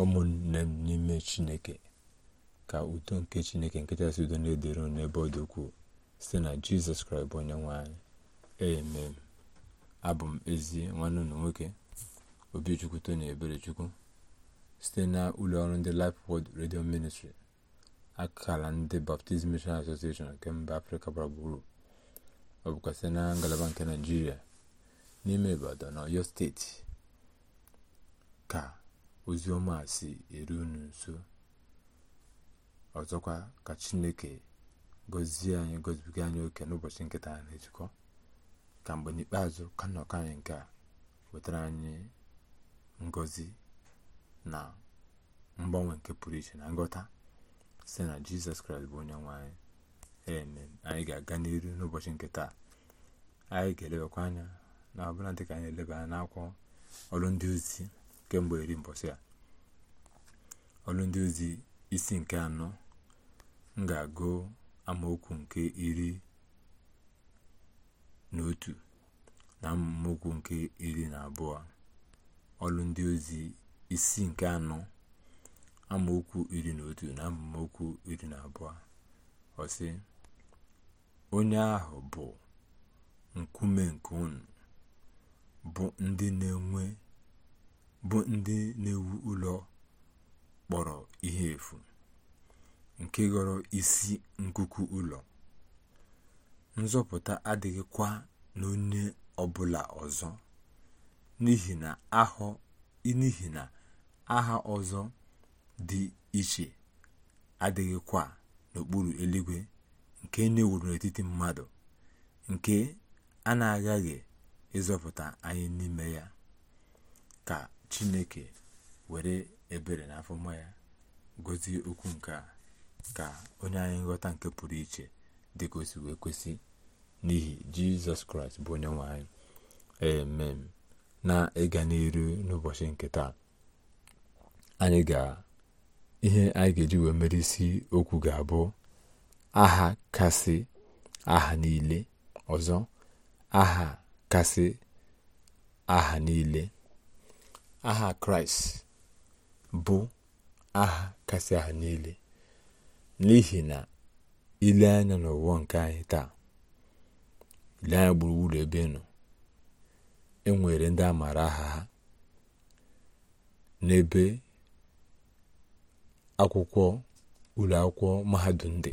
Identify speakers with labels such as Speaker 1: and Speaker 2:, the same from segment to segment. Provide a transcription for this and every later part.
Speaker 1: ụmụnne m n'ime chineke ka udo nke chineke nkechasị udo na-edere n'ebe ọ dị ukwuu site na jizọs kraịst bụ onye nwe anyị abụ m ezi nwanne ụlọ nwoke obichukwu tony eberechukwu site na ụlọ ọrụ ndị Life redio Radio Ministry akala ndị Baptist Mission Association nke mba afrịka gbara gburu ọ bụkwa site na ngalaba nke naijiria n'ime ibadan na oyo steeti ka ozi ọma si eru unu nso ọzọkwa ka chineke gọzie anyị gọzibiga anyị oke n'ụbọchị nkịta na-ejikọ ka mgbe n'ikpeazụ ka nnọkọ anyị nke a wetara anyị ngọzi na mgbanwe nke pụrụ iche na ngọta si na jizọs kraịst bụ onye nwe anyị amen anyị ga-aga n'iru n'ụbọchị nke taa anyị ga-elebakwa anya na ọbụla dịka anyị eleba anya n'akwụkwọ ọrụ ndị ozi kemgbe iri mbọchị a ọrụ ndị ozi isi nke anọ m ga-agụ amaokwu nke iri na otu na amaokwu nke iri na abụọ ọrụ ndị ozi isi nke anọ amaokwu iri na otu na amaokwu iri na abụọ ọsị onye ahụ bụ nkume nke unu bụ ndị na-enwe bụ ndị na-ewu ụlọ kpọrọ ihe efu nke ghọrọ isi nkuku ụlọ nzọpụta adịghịkwa n'onye ọbụla ọzọ n'ihi na aha ọzọ dị iche adịghịkwa n'okpuru eluigwe nke na-ewuru n'etiti mmadụ nke a na-aghaghị ịzọpụta anyị n'ime ya ka chineke were ebere na afọma ya gozie okwu nke a ka onye anyị nghọta nke pụrụ iche dị ka kwesị n'ihi jizọs kraịst bụ onye nwe anyị emem na ịga n'iru n'ụbọchị nke taa anyị ga ihe anyị ga-eji wee mere isi okwu ga-abụ aha kasị aha niile ọzọ aha kasị aha niile aha kraịst bụ aha kasị aha niile n'ihi na ile anya n'ụwa nke anyị taa ile anya gburugburu ebe nọ e enwere ndị a aha ha n'ebe akwụkwọ ụlọ akwụkwọ mahadum dị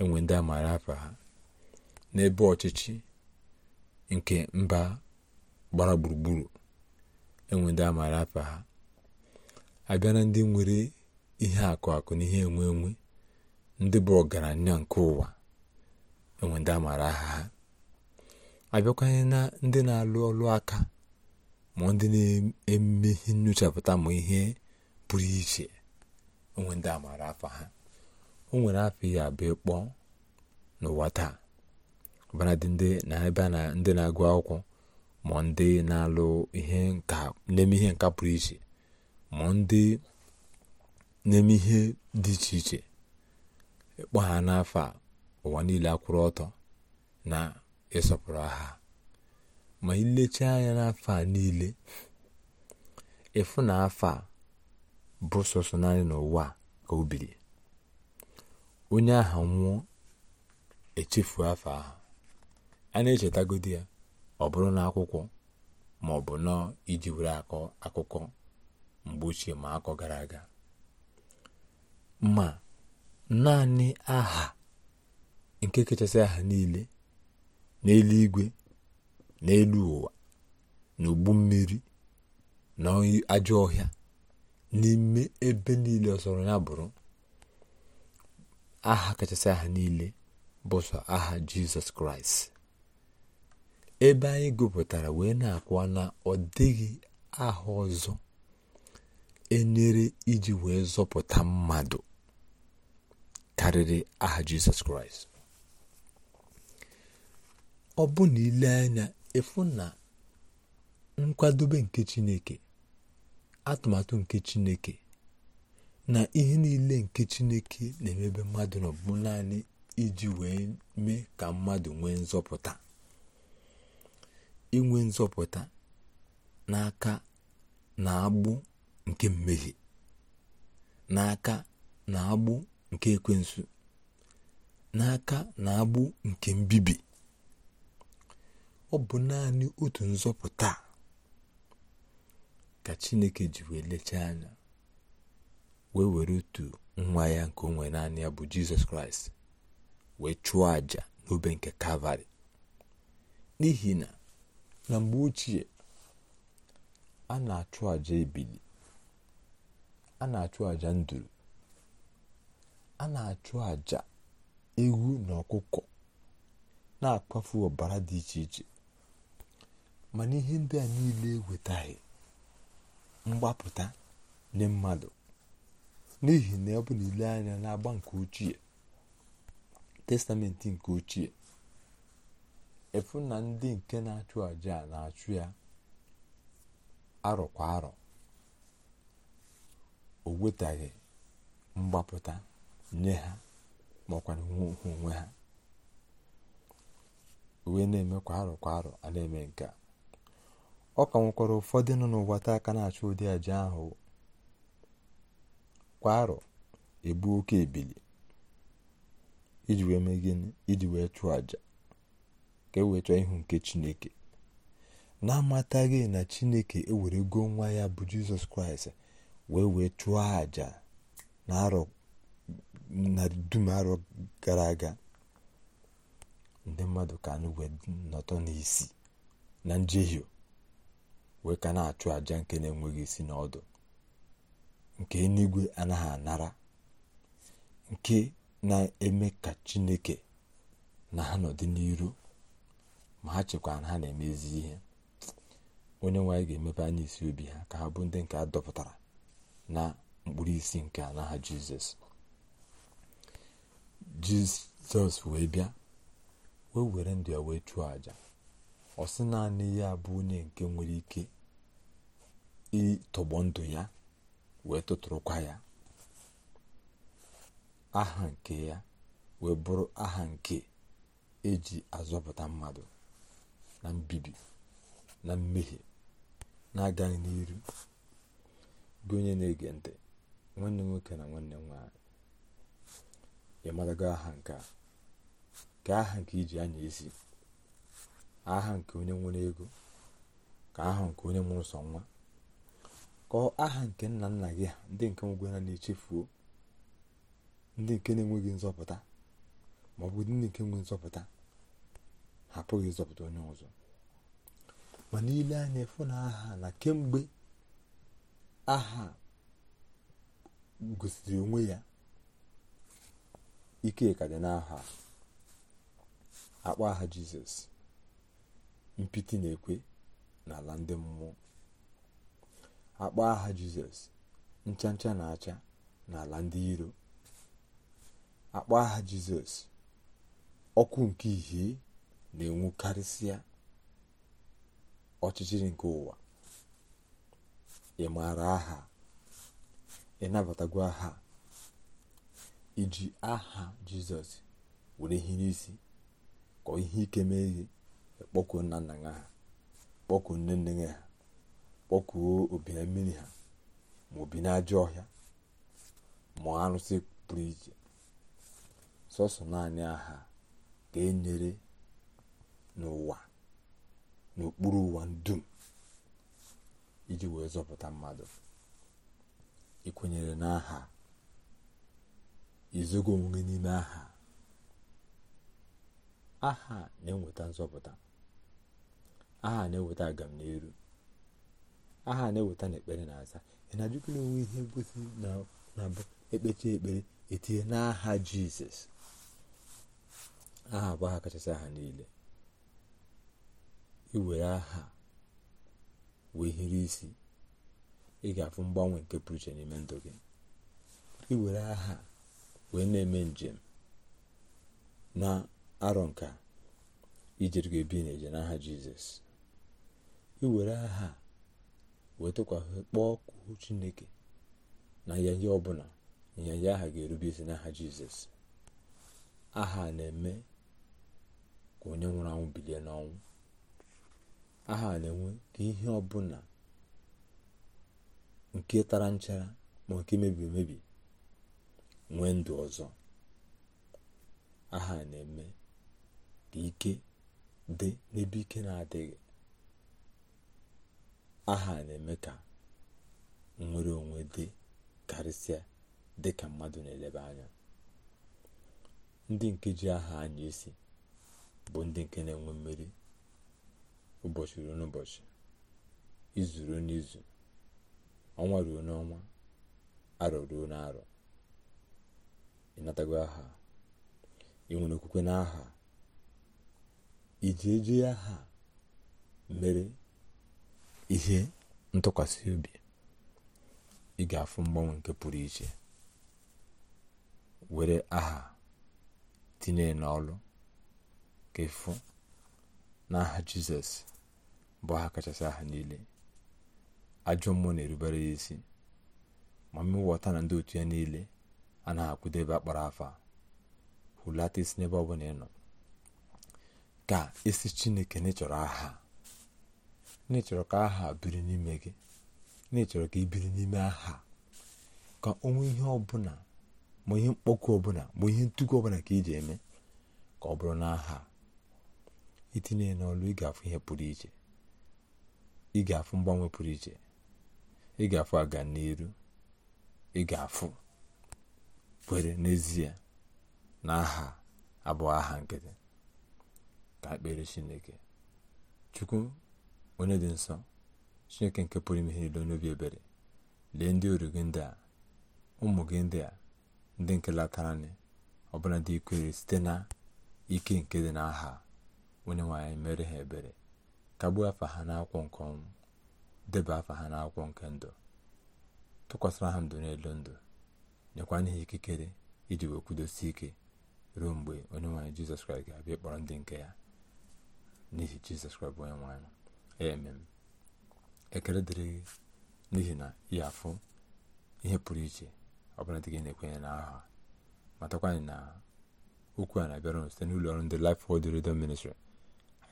Speaker 1: enwe ndị amaara ha n'ebe ọchịchị nke mba gbara gburugburu enwe ndị amaara afa ha abịa na ndị nwere ihe akụ akụ na ihe enwe enwe ndị bụ ọgaranya nke ụwa enwe ndị amaara aha ha abịakwanye na ndị na-alụ ọlụ aka ma ndị na-eme ihe nyochapụta ma ihe pụrụ iche onwe ndị amaara afa ha o nwere afọ ya abịa ịkpọ n'ụwa taa ọbara ndị na-ebe na ndị na-agụ akwụkwọ ma ndị na-alụ ihe nka na ihe nka pụrụ iche ma ndị na ihe dị iche iche ịkpọ ha n'afọ ụwa niile akwụrụ ọtọ na ịsọpụrụ ha ma ilecha anya n'afọ a niile ịfụ na afọ a bụ sọsọ naanị n'ụwa ka o onye aha nwụọ echefu afọ ahụ a na echetagodi ya ọ bụrụ na ma ọ bụ nọ iji were akọ akụkọ mgbe ochie ma akọ gara aga ma naanị aha nke kachasị aha niile n'eluigwe n'elu ụwa n'ugbu mmiri na ajọ ọhịa n'ime ebe niile ọsọrọ ya bụrụ aha kachasị aha niile bụ sọ aha jizọs kraịst ebe anyị gụpụtara wee na-akwa na ọ dịghị aha ọzọ enyere iji wee zọpụta mmadụ karịrị aha jizọs kraịst ọ bụ na ile anya efu na nkwadobe nke chineke atụmatụ nke chineke na ihe niile nke chineke na-emebe mmadụ n'ọbụ naanị iji wee mee ka mmadụ nwee nzọpụta inwe nzọpụta n'aka na agbụ nke mmehie n'aka na agbụ nke ekwensu n'aka na agbụ nke mbibi ọ bụ naanị otu nzọpụta ka chineke ji wee lechaa anya wee were otu nwa ya nke onwe naanị ya bụ jizọs kraịst wee chụọ àjà n'obe nke kalvarị n'ihi na na mgbe ochie a na-achụ àjà ebili a na-achụ àjà nduru a na-achụ àjà ewu na ọkụkọ na-akpafu ọbara dị iche iche mana ihe ndị a niile ewetaghị mgbapụta nye mmadụ n'ihi na ọ bụ na ile anya agba nke ochie testamenti nke ochie efu na ndị nke na-achụ aja a na-achụ ya arọ kwa arọ o wetaghị mgbapụta nye ha maọkwa nwe onwe ha wee na-eme kwa arọ kwa arọ a na-eme nke a ọ ka nwekwara ụfọdụ nọ n'ụwa aka na-achụ ụdị aja ahụ kwa arọ ebu oke ebili iji wee mee gịnị iji wee chụọ aja ka eweta ihu nke chineke na-amataghị na chineke ewerego nwa ya bụ jizọs kraịst wee wee chụọ àjà na dum arọ gara aga ndị mmadụ ka n'igwe wee nọtọ n'isi na njehie wee ka na-achụ àja nke na-enweghị isi na ọdụ nke eluigwe anaghị anara nke na-eme ka chineke na ha nọdị ma ha chekwara na ha na-emezi ihe onye nwe ga-emepe anya isi obi ha ka ha bụ ndị nke a dọpụtara na mkpụrụ isi nke a n'aha jizọs jizọs wee bịa wee were ndụ ya wee chụọ àjà ọ naanị ya bụ onye nke nwere ike ịtọgbọ ndụ ya wee tụtụrụkwa ya aha nke ya wee bụrụ aha nke eji azọpụta mmadụ na mbibi na mmehie na-agaghị n'iru gị onye na-ege ntị nwanne nwoke na nwanne nwanyị ị marago aha nke ka aha nke iji anya esi aha nke onye nwere ego ka aha nke onye nwere sọ nwa ka aha nke nna nna gị ndị nke nwegwe ha na-echefuo ndị nke na-enweghị nzọpụta ma ndị nke nwe nzọpụta apụghị ịzọpụta onye ọzọ mana ile anya efu na aha na kemgbe aha gosiri onwe ya ike ka dị n'aha akpọ aha jizọs mpiti na-ekwe n'ala ndị mmụọ akpọ aha jizọs ncha ncha na-acha n'ala ndị iro akpọ aha jizọs ọkụ nke ihe na-enwu karịsịa ọchịchịrị nke ụwa ị maara aha ị aha iji aha jizọs were ihe n'isi ka ihe ike mee ihe kpọkuo nna nna ha kpọkuo nne nne ha kpọkuo obi mmiri ha ma obi n'ajọ ọhịa ma arụsị pụrụ iche sọsọ naanị aha ka e nyere n'ụwa n'okpuru ụwa dum iji wee zọpụta mmadụ ịkwenyere n'aha izogo onwe n'ime aha aha na-eweta nzọpụta aha na-eweta agamnihu aha na-eweta na ekpere na-aza ị na-ajụkwa n'onwe ihe ngosi na-abụ ekpechi ekpere etinye n'aha jizọs aha bụ aha kachasị aha niile iwere aha wee hiri isi ị ga-afụ mgbanwe nke pụrụ iche n'ime ndụ gị iwere aha wee na-eme njem na arọ nka ijere gị ebi n'eje n'aha jizọs iwere aha wee tụkwasị kpọọ kwuo chineke na ya ihe ọbụla ịnyanya aha ga-erube isi n'aha jizọs aha na-eme ka onye nwụrụ anwụ bilie n'ọnwụ Aha na enwe ka ihe ọbụla nke tara nchara ma nke mebiri emebi nwee ndụ ọzọ aha na-eme ka ike dị n'ebe ike na-adịghị aha na-eme ka nnwere onwe dị karịsịa dị ka mmadụ na-eleba anya ndị nke ji aha anya isi bụ ndị nke na-enwe mmeri ụbọchị ruo n'ụbọchị izu ruo n'izu ọnwa ruo n'ọnwa arọ ruo n'arọ ịnatago aha ị nwere okwukwe n'aha iji eji aha mere ihe ntụkwasị obi ị ga-afụ mgbanwe nke pụrụ iche were aha tinye n'ọlụ ka ịfụ n'aha jizọs bụ ha kachasị aha niile ajọ mmụọ na-erubere ya isi ma mmụwọta na ndị otu ya niile anaghị akwụdebe akpara afa hulata isi n'ebe ọ bụla ị ka isi chineke n'ịchọrọ aha n'ịchọrọ ka aha biri n'ime gị n'ịchọrọ ka ị n'ime aha ka onwe ihe ọbụla ma ihe mkpọkụ ọbụla ma ihe ntụkwu ọbụla ka iji eme ka ọ bụrụ n'aha itinye n'ọlụ ị ga-afụ ihe pụrụ iche ị ga mgbanwe pụrụ iche ị ga-afụ aga n'iru ị ga-afụ kwere n'ezie na aha abụọ aha nkịtị ka kpere chineke chukwu onye dị nsọ chineke nke pụrụ ime ihe niile n'obi ebere lee ndị oru gị ndị a ụmụ gị ndị a ndị nke latarani ọbụla dị ikwere site na ike nke dị n'aha onye nwanyị mere ha ebere kagbuo afa ha n'akwụkwọ nke ọnwụ deba afa ha n'akwụkwọ nke ndụ tụkwasịra ha ndụ n'elu ndụ nyekwa n'ihi ikikere iji wee kwudosie ike ruo mgbe onye nwaanyị jizọs kraịst ga-abịa ịkpọrọ ndị nke ya n'ihi jizọs kraịst bụ onye nwaanyị emem ekele dịrị gị n'ihi na ị afụ ihe pụrụ iche bụla dị gị na-ekwenye n'aha ma anyị na okwu a na-abịara site n'ụlọ ọrụ ndị Life Word Radio ministri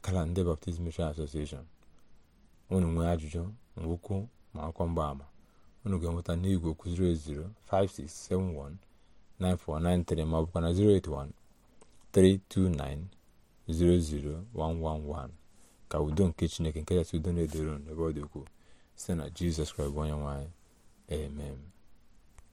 Speaker 1: akara ndị Baptist Mission Association unu nwee ajụjụ mwụkwụ ma mgba mgbaama unu ga-enweta n'igwe okwu 08056719493 ma ọ na 08132900111 ka udo nke Chineke nke kachasị udo na-edoro n'ebe ọ dị ukwuu site na Jizọs Kraịst onye nwanyị